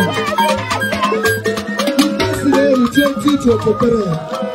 Thank you.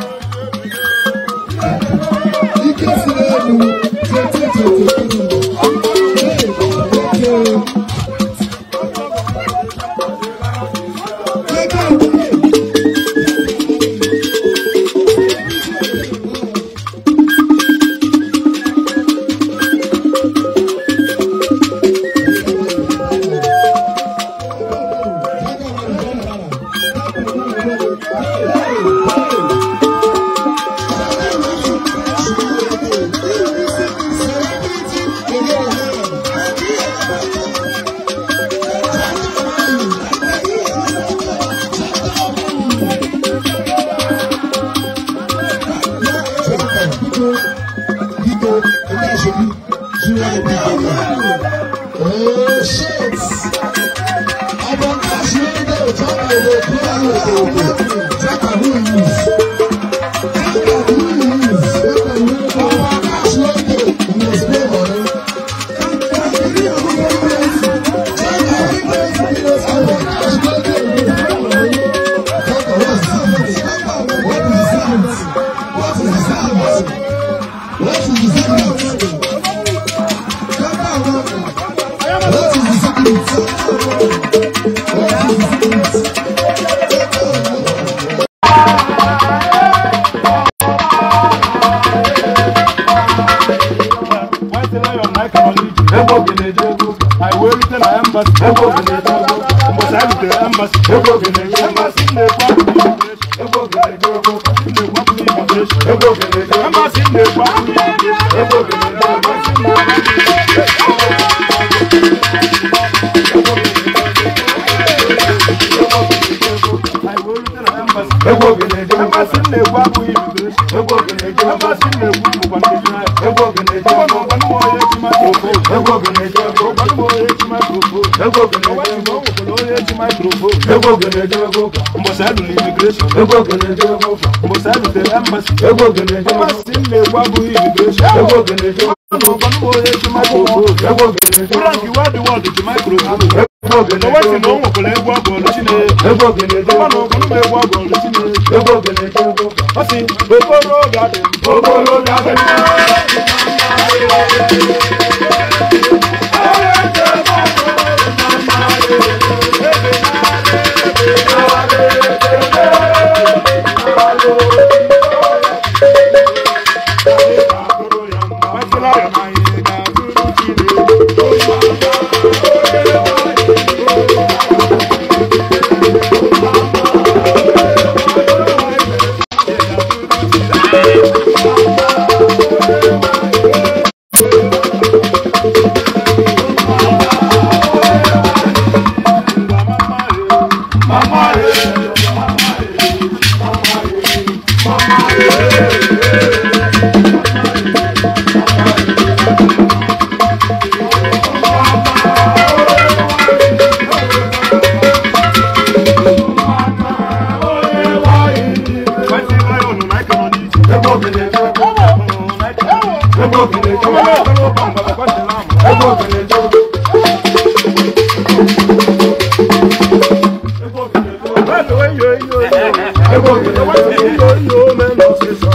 的，不要的，不要的。embassy ego oge na a ogo mbọsị anyị rutere embassy ego na-eji maikrofon mbọsị alụrụ imigreshọn mbọsị alụtere embasi embasi m na-ekwu abụghị imigreshọn frank wad na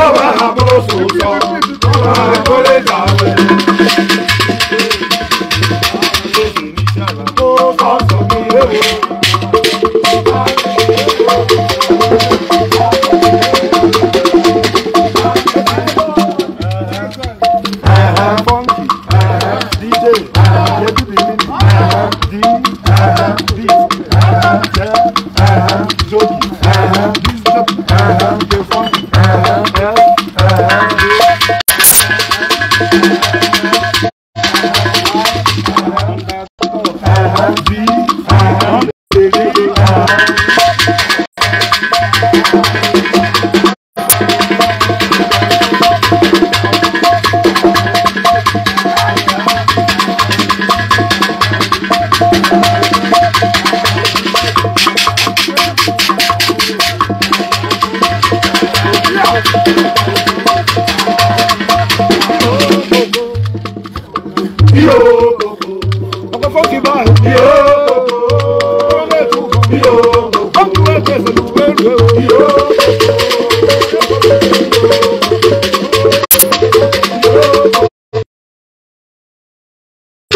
kọ́ bá àbúrò sòótọ́ kọ́ bá kólé